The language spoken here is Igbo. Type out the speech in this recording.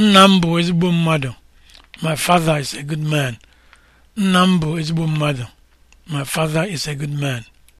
nna m bụ ezigbo mmadụ my father is a good man mmadụ my father is a good man